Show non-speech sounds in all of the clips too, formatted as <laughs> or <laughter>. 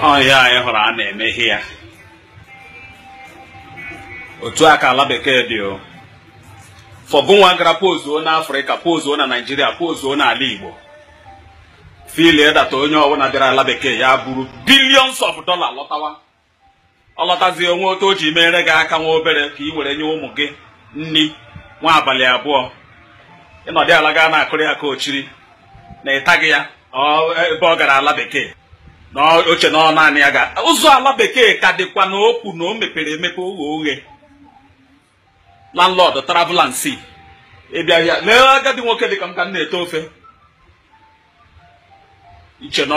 ọhịa anyị hụrụ a na-emeghe ya otu aka ala bekee dị o fọgụnwa gara pozuo na afrịka pozuo na naijiria pozuo na ala igbo filie data onye ọbụla bịara ala bekee ya buru billions of dollar lọtawa ọlọtazi onwe otu o ji mere gị aka nwa obere ka ị were nye ụmụ gị nri nwa abalị abụọ ịnọdị ala gaa na akụrị ka ochiri na ịtaghị ya ebe ọ gara ala bekee n'oche na naanị ya ga ụzọ ala bekee ka dịkwa na okwu na o mepere emepe oghe oghe landlord travelansi ịbịahịa ya lee agadi nwoke dịka m ka m na eto ofe iche na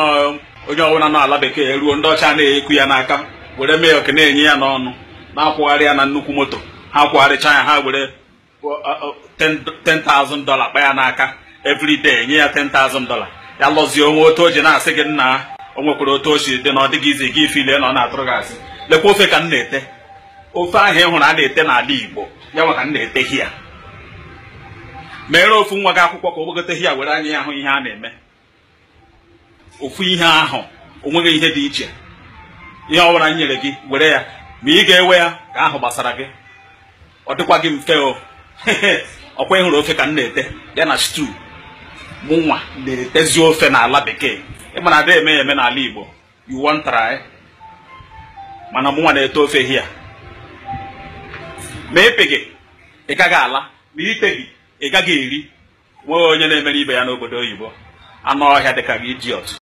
onye ọbụla na ala bekee ruo ndị ọcha na-ekwu ya n'aka were mee oke na-enye ya n'ọnụ na-akwụgharị ya na nnukwu moto ha akwụgharịcha ya ha were 10,000 dollar kpa ya n'aka every nye ya 10,000 dollar ya lọzie onwe otu o ji na-asị gị nna o nwekwara otu osi dị na ọ dịghị izi gị ife ile na ọ na-atụrụ gị asị lekwa ofe ka m na-ete ofe ahụ ị hụrụ a na-ete n'ala Igbo ya maka m na-ete hia meere ofu nwa gị akwụkwọ ka o gbagote hia were anya ahụ ihe a na-eme ofu ihe ahụ onweghị ihe dị iche ihe ọ bụla nyere gị were ya ma ị ga-ewe ya ka ahụ gbasara gị ọ dịkwa gị mfe o <laughs> ọkwa ịhụrụ ofe ka m na-ete ya na stew nwa na-etezi ofe n'ala bekee ịma na ada eme eme n'ala Igbo you wan try mana mụnwa na-eto ofe hia ma epe gị ị gaghị ala ma ite gị ị gaghị eri nwee onye na-emere ibe ya n'obodo oyibo anụ ọhịa dịka gị idiot